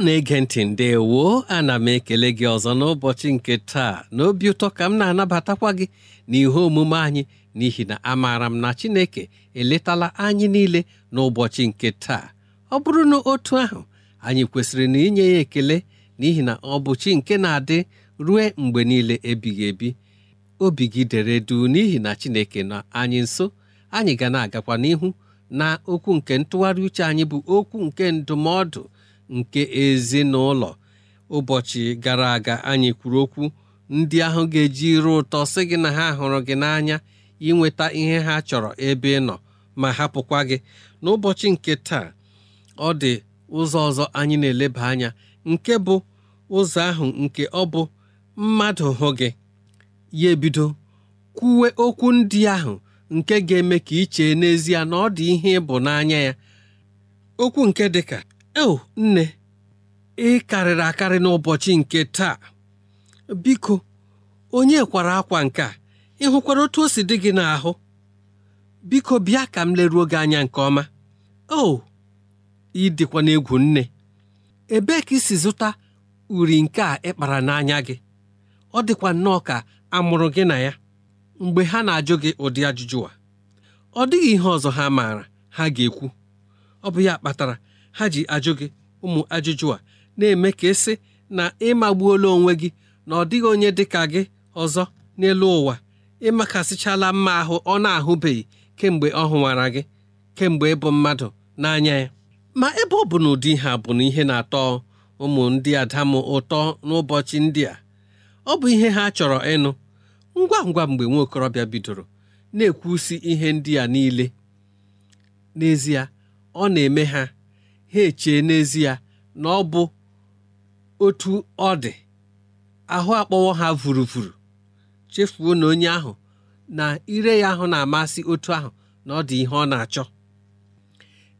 na-ege ntị ndewo ana m ekele gị ọzọ n'ụbọchị nke taa n'obi ụtọ ka m na-anabatakwa gị n'ihe omume anyị n'ihi na amaara m na Chineke eletala anyị niile n'ụbọchị nke taa ọ bụrụ na otu ahụ anyị kwesịrị na inye ya ekele n'ihi na ọ bụ chi nke na-adị rue mgbe niile ebighị ebi obi gị dere duu n'ihi na Chineke na anyị nso anyị ga na-agakwa n'ihu na okwu nke ntụgharị uche anyị bụ okwu nke ndụmọdụ nke ezinụlọ ụbọchị gara aga anyị kwuru okwu ndị ahụ ga-eji iru ụtọ sị gị na ha hụrụ gị n'anya inweta ihe ha chọrọ ebe ị nọ ma hapụkwa gị n'ụbọchị nke taa ọ dị ụzọ ọzọ anyị na-eleba anya nke bụ ụzọ ahụ nke ọ bụ mmadụ hụ gị ya ebido kwuwe okwu ndị ahụ nke ga-eme ka i n'ezie na ọ dị ihe ịbụ n'anya ya okwu nke dịka o nne ị karịrị akarị n'ụbọchị nke taa biko onye kwara akwa nke a ị hụkwara otu o si dị gị n'ahụ biko bịa ka m leruo gị anya nke ọma o ị dịkwa n'egwu nne ebee ka isi si zụta uri nke a ịkpara n'anya gị ọ dịkwa nnọọ ka a mụrụ gị na ya mgbe ha na-ajụ gị ụdị ajụjụ a ọ dịghị ihe ọzọ ha maara ha ga-ekwu ọ bụ ya kpatara ha ji ajụ gị ụmụ ajụjụ a na-eme ka esi na ịmagbuola onwe gị na ọ dịghị onye dị ka gị ọzọ n'elu ụwa ịmakasịchala mma ahụ ọ na-ahụbeghị kemgbe ọ hụwara gị kemgbe ịbụ mmadụ n'anya ya ma ebe ọ bụ na ụdị ha bụ na ihe na-atọ ụmụ ndị adamụ ụtọ n'ụbọchị ndị a ọ bụ ihe ha chọrọ ịnụ ngwa ngwa mgbe nwa okorobịa bidoro na-ekwusi ihe ndị a niile n'ezie ọ na-eme ha ha echee n'ezie na ọ bụ otu ọ dị ahụ akpọwọ ha vuruvuru chefuo na onye ahụ na ire ya ahụ na-amasị otu ahụ na ọ dị ihe ọ na-achọ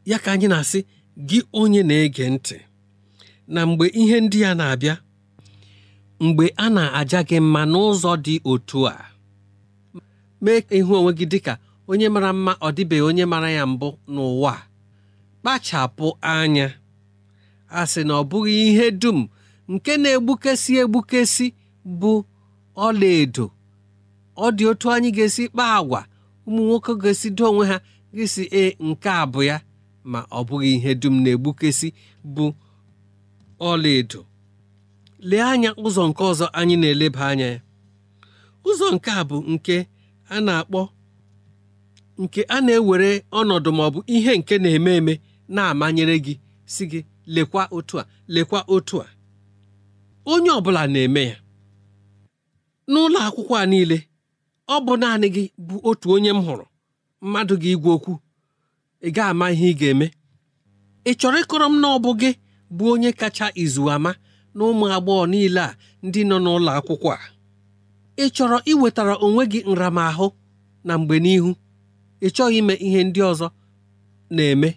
ya ka anyị na-asị gị onye na-ege ntị na mgbe ihe ndị ya na-abịa mgbe a na-aja gị mma n'ụzọ dị otu a mee ịhụ onwe gị dịka onye mara mma ọ dịbeghị onye mara ya mbụ n'ụwa kpachapụ anya a sị na ọ bụghị ihe dum nke na-egbukesi egbukesi bụ ọlaedo ọ dị otu anyị ga-esi kpaa agwa ụmụ nwoke ga-esi do onwe ha gịsị e nke a bụ ya ma ọ bụghị ihe dum na-egbukesi bụ ọlaedo lee anya ụzọ nke ọzọ anyị na-eleba anya ya ụzọ nke a bụ nke a na-akpọ nke a na-ewere ọnọdụ maọbụ ihe nke na-eme eme na-amanyere gị si gị lekwa otu a lekwa otu a onye ọbụla na-eme ya n'ụlọ akwụkwọ a niile ọ bụ naanị gị bụ otu onye m hụrụ mmadụ gị igwe okwu ị ga-ama ihe ị ga-eme ị chọrọ ịkọrọ m na ọ bụ gị bụ onye kacha izu ama na ụmụ agbọghọ niile a ndị nọ n'ụlọ akwụkwọ a ị chọrọ iwetara onwe gị nramahụ na mgbe n'ihu ị chọghị ime ihe ndị ọzọ na-eme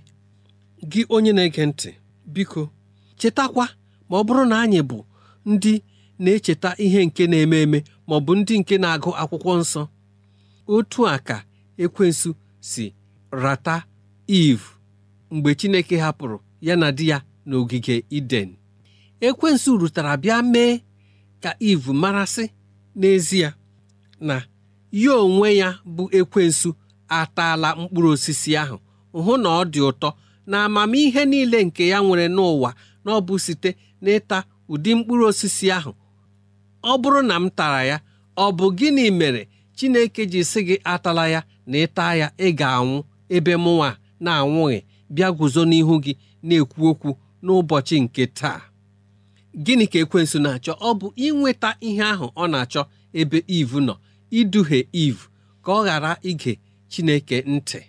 gị onye na-ege ntị biko chetakwa ma ọ bụrụ na anyị bụ ndị na-echeta ihe nke na-eme eme ma ọ bụ ndị nke na-agụ akwụkwọ nsọ otu a ka ekwensu si rata Iv mgbe Chineke hapụrụ ya na di ya n'ogige Iden ekwensu rutara bịa mee ka Iv marasị n'ezie na ya onwe ya bụ ekwensu ataala mkpụrụ osisi ahụ hụ na ọ dị ụtọ na amamihe niile nke ya nwere n'ụwa na ọ bụ site n'ịta ụdị mkpụrụ osisi ahụ ọ bụrụ na m tara ya ọ bụ gịnị mere Chineke ji sị gị atala ya na ịta ya ị ga-anwụ ebe mụnwa na-anwụghị bịa guzo n'ihu gị na-ekwu okwu n'ụbọchị nke taa gịnị ka ekwensu na-achọ ọ bụ inweta ihe ahụ ọ na-achọ ebe ivu nọ iduhie ivu ka ọ ghara ige Chineke ntị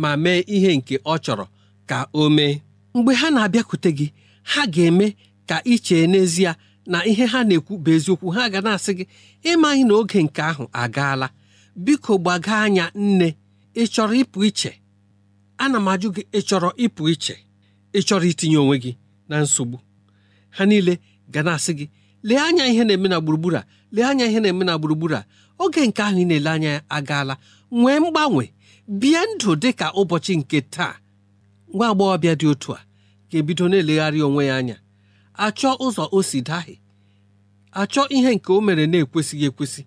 ma mee ihe nke ọ chọrọ ka o mee mgbe ha na-abịakwute gị ha ga-eme ka ị chee n'ezie na ihe ha na-ekwu bụ eziokwu ha ga na-asị gị ịmaghị na oge nke ahụ agaala biko gbaga anya nne ị chọrọ ịpụ iche ana m ajụ gị ị chọrọ ịpụ iche ị chọrọ itinye onwe gị na nsogbu ha niile ga na-asị gị lee anya ihe na-eme na gburugburu a lee anya ihe na-eme na gburugburu a oge nke ahụ ị na-ele anya ya agaala nwee mgbanwe bie ndụ dị ka ụbọchị nke taa nwa agbọghọbịa dị otu a ga-ebido na-elegharị onwe ya anya achọ ụzọ o si dahie achọ ihe nke o mere na-ekwesịghị ekwesị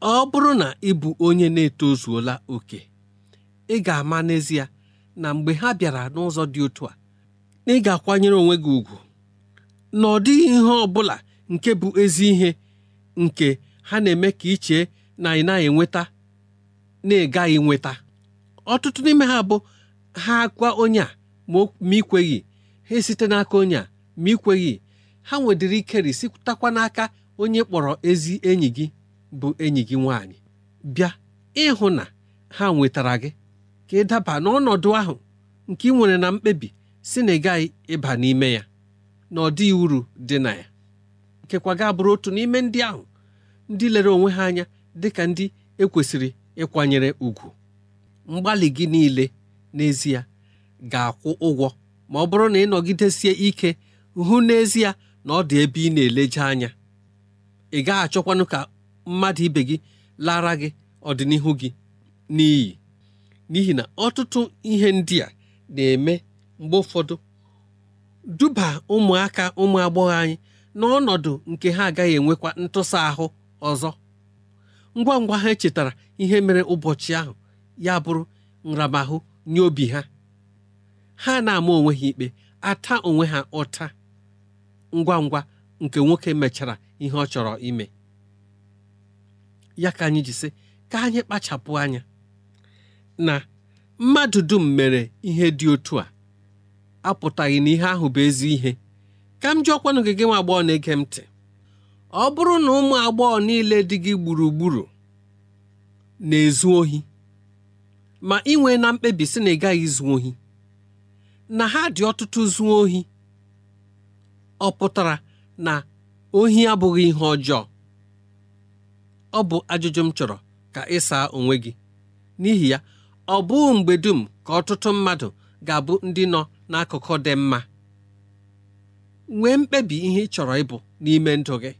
ọ bụrụ na ị bụ onye na-etozuola oke ị ga-ama n'ezie na mgbe ha bịara n'ụzọ dị otu a na ị ga-akwanyere onwe gị ùgwù na ọ dịghị ihe ọ bụla nke bụ ezi ihe nke ha na-eme ka ichee na ị naghị enweta na ị gaghị nweta ọtụtụ n'ime ha bụ ha kwa onye a ma ikweghị ha esite n'aka onye a ma ikweghị ha nwedịrị ike risitakwa n'aka onye kpọrọ ezi enyi gị bụ enyi gị nwanyị bịa ịhụ na ha nwetara gị ka ị daba n'ọnọdụ ahụ nke ị nwere na mkpebi si na ị gaghị ịba n'ime ya na ọ dịghị uru dị na ya nkekwa kwaga bụrụ otu n'ime ndị ahụ ndị lere onwe ha anya dị ka ndị ekwesịrị ịkwanyere ùgwù mgbalị gị niile n'ezie ga-akwụ ụgwọ ma ọ bụrụ na ị nọgidesie ike hụ n'ezie na ọ dị ebe ị na-eleje anya ị gaghị achọkwanụ ka mmadụ ibe gị lara gị ọdịnihu gị n'iyi n'ihi na ọtụtụ ihe ndị a na-eme mgbe ụfọdụ duba ụmụaka ụmụ agbọghọ anyị n'ọnọdụ nke ha agaghị enwekwa ntụsa ahụ ọzọ ngwa ngwa ha chetara ihe mere ụbọchị ahụ ya bụrụ nramahụ n'obi ha ha na-ama onwe ha ikpe ata onwe ha ụta ngwa ngwa nke nwoke mechara ihe ọ chọrọ ime ya ka anyị ji sị ka anyị kpachapụ anya na mmadụ dum mere ihe dị otu a apụtaghị na ihe ahụ bụ ezi ihe ka m jụọkwanụ gị gị nwa agbọghọ na-ege m ntị ọ bụrụ na ụmụ agbọghọ niile dị gị gburugburu na-ezu ohi ma inwe na mkpebi si na ị gaghị zuo ohi na ha dị ọtụtụ zuo ohi ọ pụtara na ohi abụghị ihe ọjọọ ọ bụ ajụjụ m chọrọ ka ị saa onwe gị n'ihi ya ọ bụghị mgbe dum ka ọtụtụ mmadụ ga-abụ ndị nọ n'akụkụ dị mma nwee mkpebi ihe ị chọrọ ịbụ n'ime ndụ gị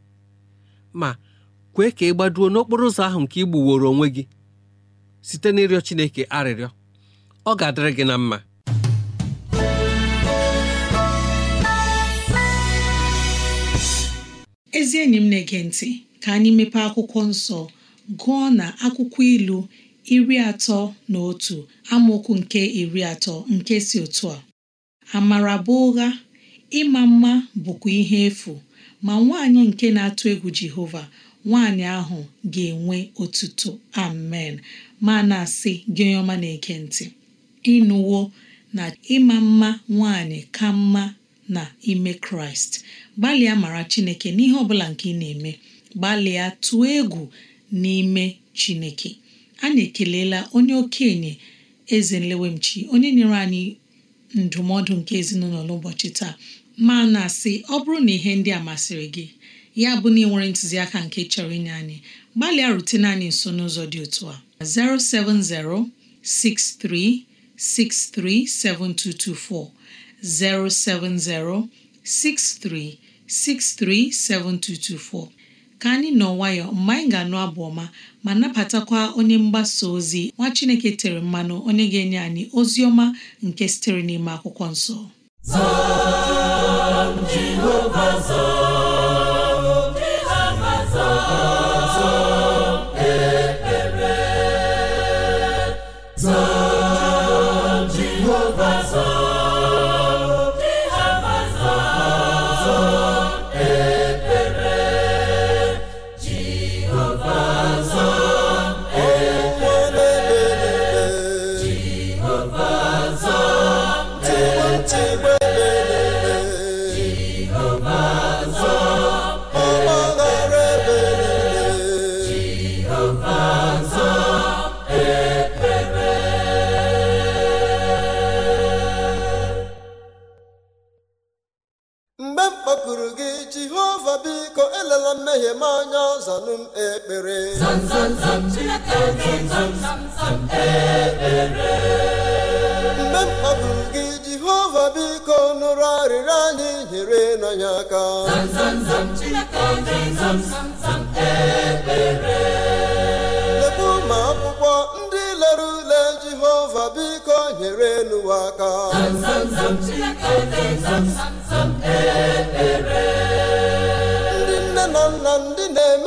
ma kwee ka ị gbaduo n'okporo ụzọ ahụ nke ị gbuworo onwe gị site n'ịrịọ Chineke arịrịọ ọ ga-adịrị gị na mma ezi enyi m na-ege ntị ka anyị mepe akwụkwọ nsọ gụọ na akwụkwọ ilu iri atọ na otu amaokwu nke iri atọ nke si otu a amara bụ ụgha ịma mma bụkwa ihe efu ma nwaanyị nke na-atụ egwu Jehova nwaanyị ahụ ga-enwe otuto amen ma na-asị gị onye ọma na-ege ntị ịnụwo na ịma mma nwanyị ka mma na ime kraịst gbalịa mara chineke n'ihe ọbụla nke ị na-eme gbalịa tụọ egwu n'ime chineke anyị ekelela onye okenye eze nlewemchi onye nyere anyị ndụmọdụ nke ezinụlọ n'ụbọchị taa ma na-asị ọ bụrụ na ihe ndị a masịrị gị ya bụ na ị nwere ntụziaka nke chọrọ inye anyị gbalịa rutena anyị nso n'ụzọ dị otu a 070-6363-7224 070-6363-7224 ka anyị nọ nwayọ mgbe anyị ga-anụ abụ ọma ma napatakwa onye mgbasa ozi nwa Chineke tere mmanụ onye ga-enye anyị ozi ọma nke sitere n'ime akwụkwọ nsọ jehova biko nụrụ arịrịọ anyị nyere n'anya aka lekwu ma akwụkwọ ndị lere ule jehova biko nyere n'ụwa aka ndị nne na nna ndị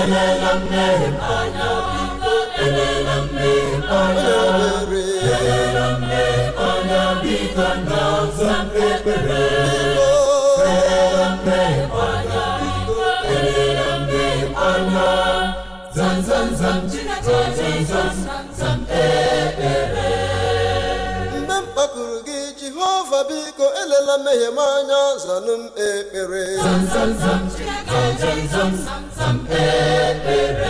elele mmehie anya biko elele mmehie anya elele mmehie anya biko na ọza ekpere elele mmehie anya biko elele mmehie anya zam zam zam zam zam zam ekpere mgbe m kpakuru gị jehova biko elela mmehie m anya zanụ m ekpere zam zam zam zam zam ndị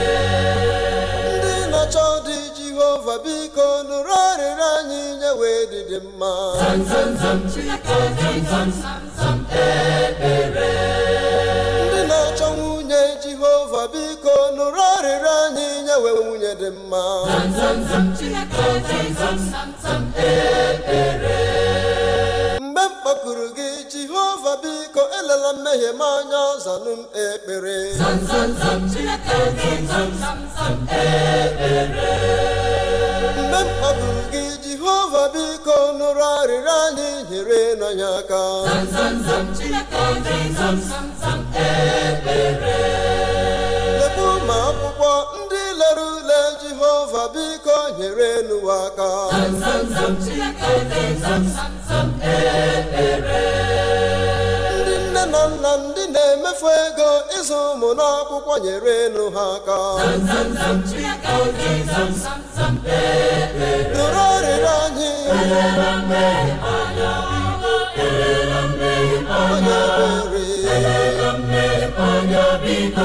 na-achọ dị Jehova biko nụrụ anyị nye wee dịdị mma ndị na-achọ nwunye Jehova biko nụrụ arịrị anyị nye wee nwunye dị mma mgbe m kpọkuru gị jehova biko elela mmehie m anya zanụ m ekpere mgbe m kpọdụrụ gị jehova biko nụrụ arịrịọ anyị nyere n'anya aka lekwu ma akwụkwọ ndị lere ule jehova biko nyere elu aka ndị nne na nna ndị na-emefu ego ịzụ ụmụ n'akwụkwọ nyere elu ha aka nụrụ eh, eh. ọrịrị anyị eh, biko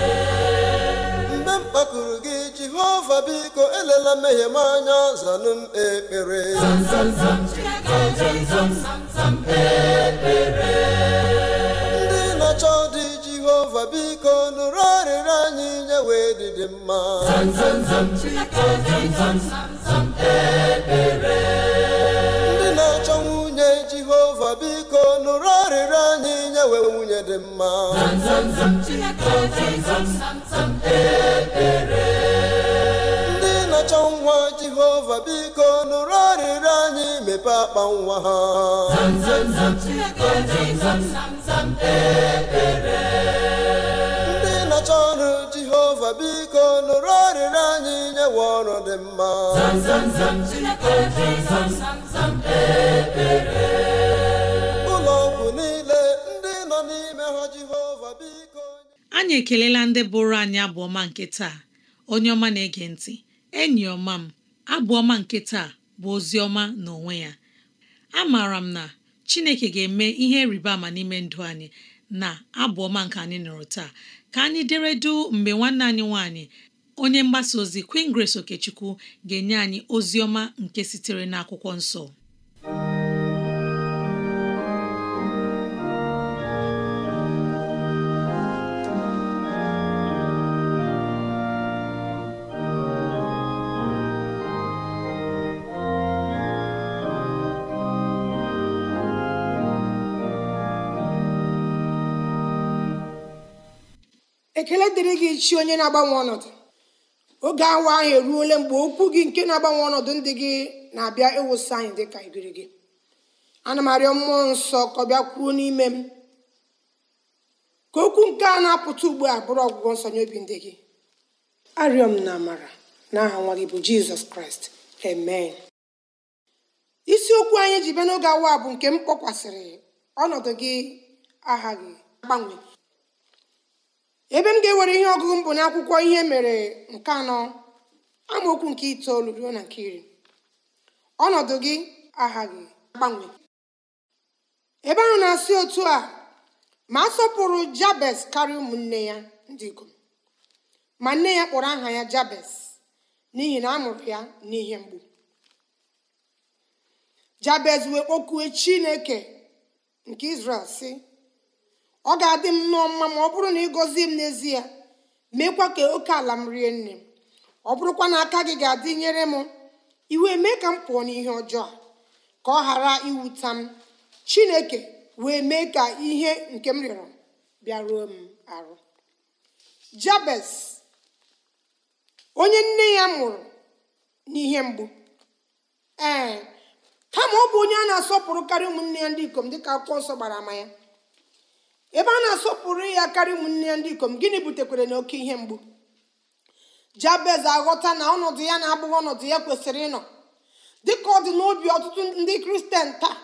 elela mmehie m ndị na-achọ dị anyị nye wee dịdị mma ndị na-achọ nwunye jehova biko nụrụ arịrị anyị nye wee nwunye dị mma nwa jehova biko nụrụ arịrịọ anyị mepe akpa nwa ha ndị na-achọ ọrụ jehova biko nụrụ arịrịọ anyị nyewe ọrụ dị mma e, e, e, ụlọ ọgwụ niile ndị nọ n'ime ha jehova biko anyị ekelela ndị bụrụ anyị abụọma nke taa onye ọma na-ege ntị enyi ọma m abụ ọma nke taa bụ ozi ọma n'onwe ya amaara m na Chineke ga-eme ihe rịba ama n'ime ndụ anyị na abụ ọma nke anyị nụrụ taa ka anyị dere du mgbe nwanne anyị nwanyị onye mgbasa ozi Queen Grace Okechukwu ga-enye anyị ozi ọma nke sitere n'akwụkwọ nsọ ekele dịrị gị chi onye na-agbanwe ọnọdụ oge awa ahụ eruola mgbe okwu gị nke na-agbanwe ọnọdụ ndị gị na-abịa ịwụsị anyị dị ka ibiri gị ana m arịọ mmụọ nsọ ka ọ bịa kwuo n'ime m ka okwu nke a na-apụta ugbu a bụrụ ọgwụgwọ nsọ nye obi ndị gị arịọ m na amara n'aha nwa gị bụ jizọs kraịst amen isiokwu anyị ji bịa n'oge awa bụ nke m kpọkwasịrị ọnọdụ gị gị agbanwe ebe m ga-ewere ihe ọgụgụ mbụ na akwụkwọ ihe mere nke anọ amaokwu nke itoolu ruo na nke iri ọnọdụ gị aghaghị agbanwe ebe ahụ na-asị otu a ma a sọpụrụ jabes karịa ụmụnne ya ndị ikom ma nne ya kpọrọ aha ya jabes n'ihi na a ya n'ihe mgbu jabez wee kpọkue chineke nke izrel sị ọ ga-adị m nụọ mma ma ọ bụrụ na ị gọzie m n'ezie meekwa ka oke ala m rie nne m ọ bụrụkwa na aka gị ga-adị nyere m iwe mee ka m pụọ n'ihe ọjọọ ka ọ ghara iwuta m chineke wee mee ka ihe nke m rịọrọ bịaruo m arụ jabes onye nne ya mụrụ n'ihe mgbu ee kama ọ bụ onye a na-asọpụrụ karị ụmụnne ya ndị ikom dịka akwụkwọ nsọ gbara ama ya ebe a na-asọpụrụ ya karịa ụmụnne ndị ikom gịnị butekwere na oke ihe mgbu jabez aghọta na ọnọdụ ya na-abụghị ọnọdụ ya kwesịrị ịnọ dịka ọ dị n'obi ọtụtụ ndị kristian taa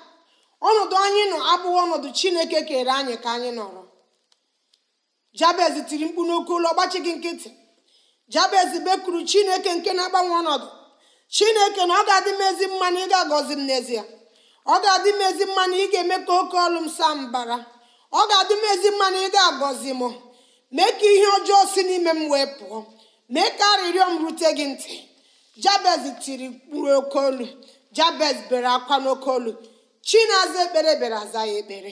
ọnọdụ anyị nọ abụghị ọnọdụ chineke kere anyị ka anyị nọrọ jabez tiri mkpu n'oke ụlọ gbachi gị nkịtị jabez bekuru chineke nke na-agbanwe ọnọdụ chineke na ọ ga-adị m ezi mma ị agọzi m n'ezie ọ ga-adị m ezi ị ga-eme ka oke ọlụ m saa mbara ọ ga-adị m ezi mma na ị ga-agọzi m mee ka ihe ọjọọ si n'ime m wee pụọ mee ka arịrịọ m rute gị ntị jabez tiri mkpụrụ oke olu jabez bere akwa n'oke olu aza ekpere bịara aza ya ekpere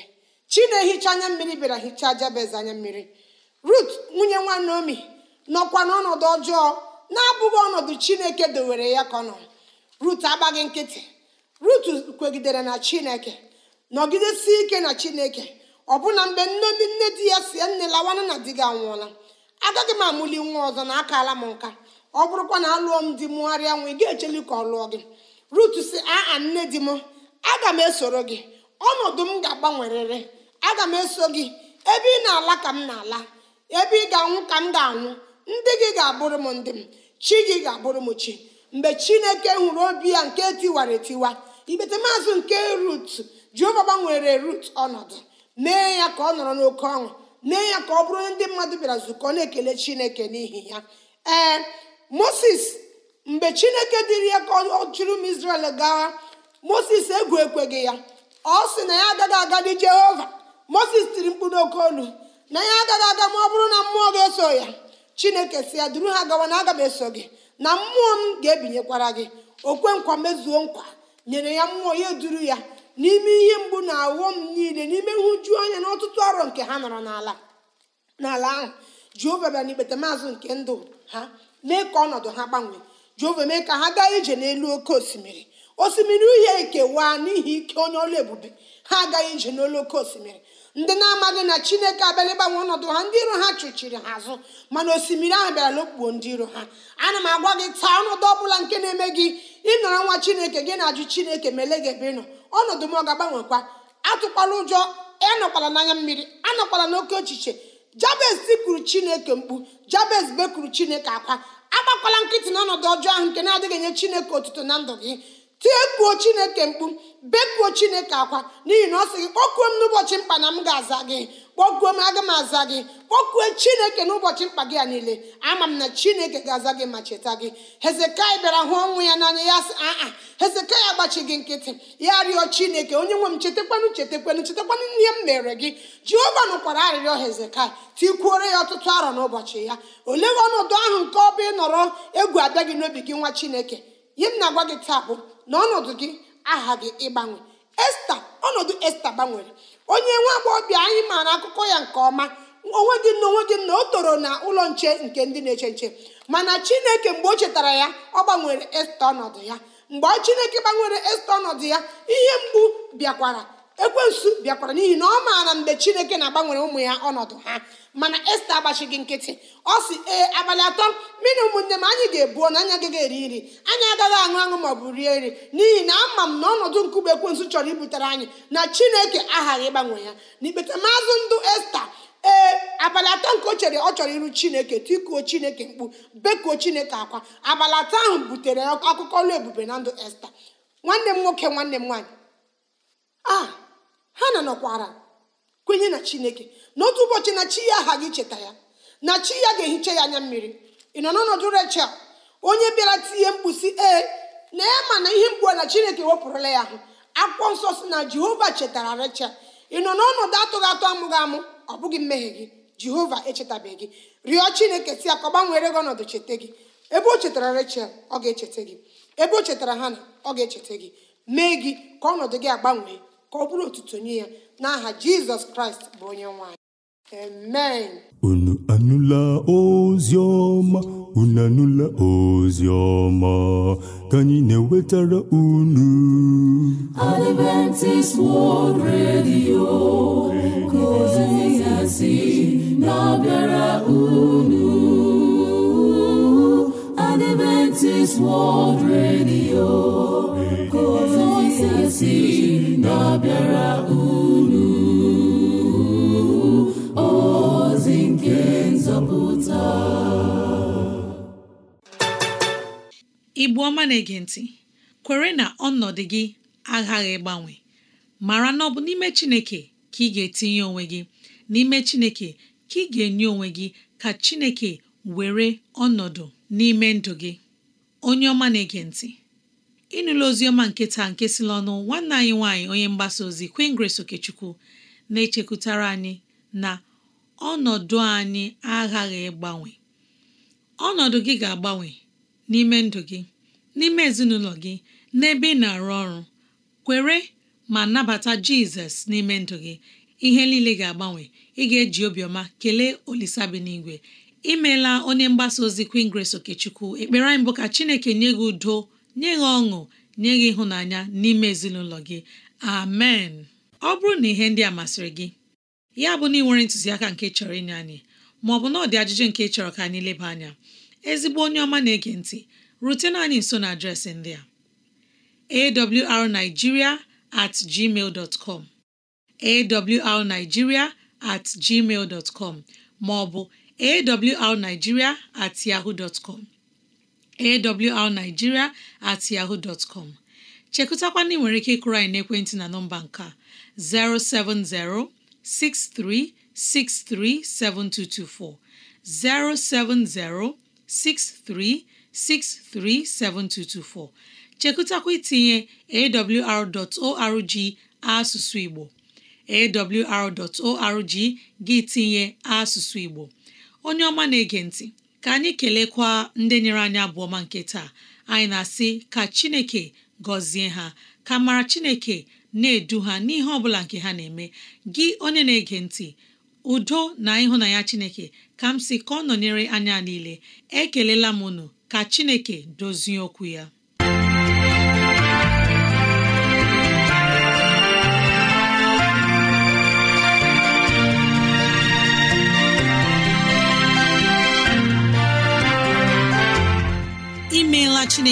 chi ehicha anya mmiri bịara hichaa jabez anya mmiri rut nwunye nwa naomi nọkwa n'ọnọdụ ọjọọ na-abụghị ọnọdụ chineke dowere ya ka ọ rut agbaghị nkịtị rut kwegidere na chineke nọgidesi ike na chineke ọbụna mgbe nne nne di ya si nne lawa na di gị anwụọla agaghị m amụli nwa ọzọ na akaala m nka ọ bụrụkwa na alụọ m di mụgharịa nwa ị ga-echeli ka ọ lụọ gị rut si aa nne di m aga m esoro gị ọnọdụ m ga-agbanwerịrị aga m eso gị ebe ị na-ala ka m na-ala ebe ị ga-anwụ ka m ga-anwụ ndị gị ga-abụrụ m ndị m chi gị ga-abụrụ m chi mgbe chineke hụrụ obi ya nke tiwara etiwa ikpete maazị nke rut jeova gbanwere rut ọnọdụ mee ya ka ọ nọrọ n'oke ọṅụ mee ya ka ọ bụrụ ndị mmadụ bịara nzukọ na-ekele chineke n'ihi ya ee moses mgbe chineke dịrị ya ka ọ chụrụ m israel gawa moses egwu ekweghị ya ọ sị na ya agaghị aga dị jehova moses tiri mkpu n'oke olu na ya agaghị aga ma ọ bụrụ na mmụọ ga-eso ya chineke si ya duru ha gawa na aga m eso gị na mmụọ m ga-ebinyekwara gị okwe nkwa mezuo nkwa nyere ya mmụọ ya duru ya n'ime ihe mgbu na m niile n'ime nhụju anya na ọtụtụ ọrụ nke ha nọrọ n'ala n'ala ahụ jehova bịara n'ikpete maazị nke ndụ ha mee ka ọnọdụ ha gbanwee jehova mee ka ha gaa ije n'elu oke osimiri osimiri uhie ekewa n'ihi ike onye ọrụ ebube ha agaghị ije n'olu oke osimiri ndị na-amaghị na chineke abịala ịgbanwe ọnọdụ ha ndị iro ha chụchiri ha azụ mana osimiri ahụ bịara lokpuo ndị iro ha ana m agwa gị taa ọnọdụ ọbụla nke na-eme gị ịnọrọ nwa chineke gị na-ajụ chineke mele gị ebe ịnọ ọnọdụ m ọ ga-agbanwekwa atụkwala ụjọ ịnọkwala n'anya mmiri anọkwala n'oke ochiche jabez tipụrụ chineke mkpu jabez bekuru chineke akwa agbakwala nkịtị n'ọnọdụ ọjọọ ahụ nke na-adịghị enye chineke otuto na ndụ gị tiepuo chineke mkpu bekuo chineke akwa n'ihi na ọ sị gị kpọkuo m n'ụbọchị mkpa na m ga-aza gị kpọkuo m aga m aza gị kpọkuo chineke n'ụbọchị mkpa gị a niile ama m na chineke ga-aza gị ma cheta gị hezekai bịara hụ ọnwụ ya n'anya ya sị aa hezekai agbachi gị nkịtị ya rịọ chineke onye nwe m chetakwanụ chetakwanụ chetakwanụ ihe m mere gị jehova nụkwara arịrịọ hezekai tikwuore ya ọtụtụ arọ n'ụbọchị ya olee ọnọdụ ahụ nke ọ bụ nọrọ egwu abịa gị n'obi gị nwa chineke ihe m na-agwa gị taa bụ na ọnọdụ gị aha gị ịgbanwe esta ọnọdụ esta gbanwere onye nwa agbọghọbịa anyị maara akụkọ ya nke ọma onwe gị na onwe gị na o toro na ụlọ nche nke ndị na-eche nche mana chineke mgbe o chetara ya ọ gbanwere esta ọnọdụ ya mgbe chineke gbanwere esta ọnọdụ ya ihe mgbu bịakwara ekwensu bịakwara n'ihi na ọ maara mgbe chineke na-agbanwere ụmụ ya ọnọdụ ha mana esta agbachighị nkịtị ọ si ee abalị atọ mmiri ụmụnne m anyị ga-ebuo na anyị agaghị eri nri anyị agaghị aṅụ aṅụ ma ọ bụ rie nri n'ihi na ama m na ọnọdụ nkụgbe ekwensu chọrọ ibutere anyị na chineke aghaghị ịgbanwe ya n'ikpeta maazụ ndụ esta ee abalị atọ nke o chere ọ chọrọ iru chineke tikuo chineke mkpu bekuo chineke akwa abalị atọ ahụ butere akụkọ ọlụ ebube na ndụ esta nwanne m nwoke nwanne m nwaanyị a ah! ha na nọkwara kwenye na chineke n'otu ụbọchị na chi ya aha gị cheta ya na chi ya ga-ehicha ya anya mmiri ị nọ n'ọnọdụ rechel onye bịara tinye mkpusi e, ee na ya na ihe mgbu na chineke wepụrụla ya ahụ akwụkwọ nsọ si na jehova chetara rechel ị nọ n'ọnọdụ atụghị atụ amụghị amụ ọ bụghị mmehie gị jehova echetabeghị gị rịọ chineke si ka ọ gbanwere gị ọnọdụ cheta gị ebe o chetara rechel ọ ga-echeta gị ebe o chetara na ọ ga-echeta gị mee gị ka ọnọdụ gị agbanwee ka ọ bụrụ ụtụtụ nye ya n'aha jizọs kraịst bụ onye nwanyị amen unu anụla ozi ọma unu anụla ozi ọma ka anyị na-ewetara unu Adventist World Radio ka ozi na-abịara unu Adventist World Radio ka si na unu ozi nke nzọpụta ọma na-ege ntị kwere na ọnọdụ gị aghaghị ịgbanwe mara na ọ bụ n'ime Chineke ka ị ga-etinye onwe gị n'ime Chineke ka ị ga-enye onwe gị ka Chineke were ọnọdụ n'ime ndụ gị onye ọma na-ege ntị ịnụla oziọma nke taa nke si n'ọnụ nwanne anyị nwaanyị onye mgbasa ozi Queen Grace Okechukwu na-echekwutara anyị na ọnọdụ anyị aghaghị ịgbanwe ọnọdụ gị ga-agbanwe n'ime ndụ gị n'ime ezinụlọ gị n'ebe ị na-arụ ọrụ kwere ma nabata Jizọs n'ime ndụ gị ihe niile ga-agbanwe ị ga-eji obiọma kelee Olisa bi n'igwe imeela onye mgbasa ozi Queen Grace Okechukwu ekpere anyị bụ ka Chineke nye gị udo nye gị ọṅụ nye gị ịhụnanya n'ime ezinụlọ gị amen ọ bụrụ na ihe ndị a masịrị gị ya bụ na ị nwere ntụziaka nke chọrọ inye anyị maọbụ na ọ ajụjụ nke chọrọ ka anyị leba anya ezigbo onye ọma na-ege ntị rutena anyị nso na adreesị ndị a awrnigeria at gmail dot com awrnigeria com maọbụ awrnigeria at yahoo com awrnigeria at yahoo dot chekụtakwana ị nwere ike ịkụrụ anyị n'ekwentị na nọmba nke a 07063637224 07063637224 chekụtakwa itinye awr.org asụsụ Igbo awr.org gị tinye asụsụ Igbo onye ọma na-ege ntị ka anyị kelekwa ndị nyere anyị abụọ ọma nke taa anyị na-asị ka Chineke gọzie ha ka mara Chineke na-edu ha n'ihe ọ bụla nke ha na-eme gị onye na-ege ntị udo na ịhụnanya Chineke ka m si ka ọ nọnyere anya niile ekelela m unu ka Chineke dozie okwu ya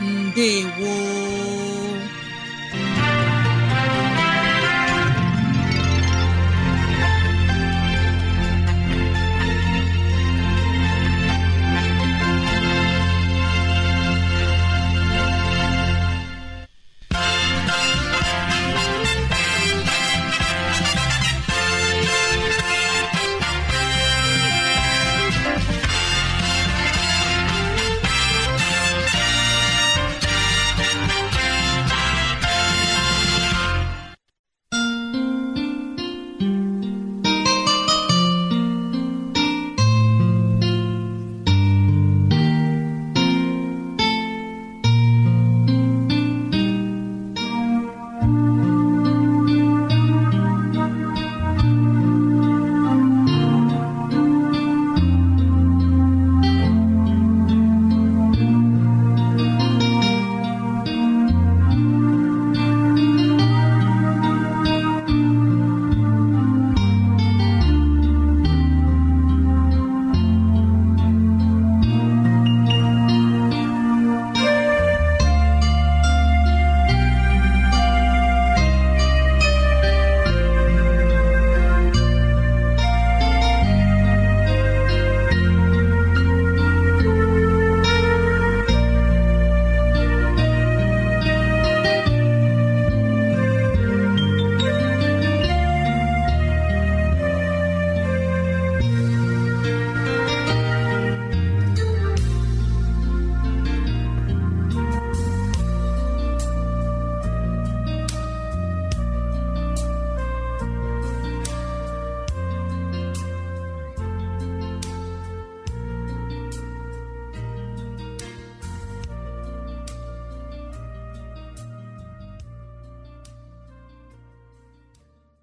mbe gwo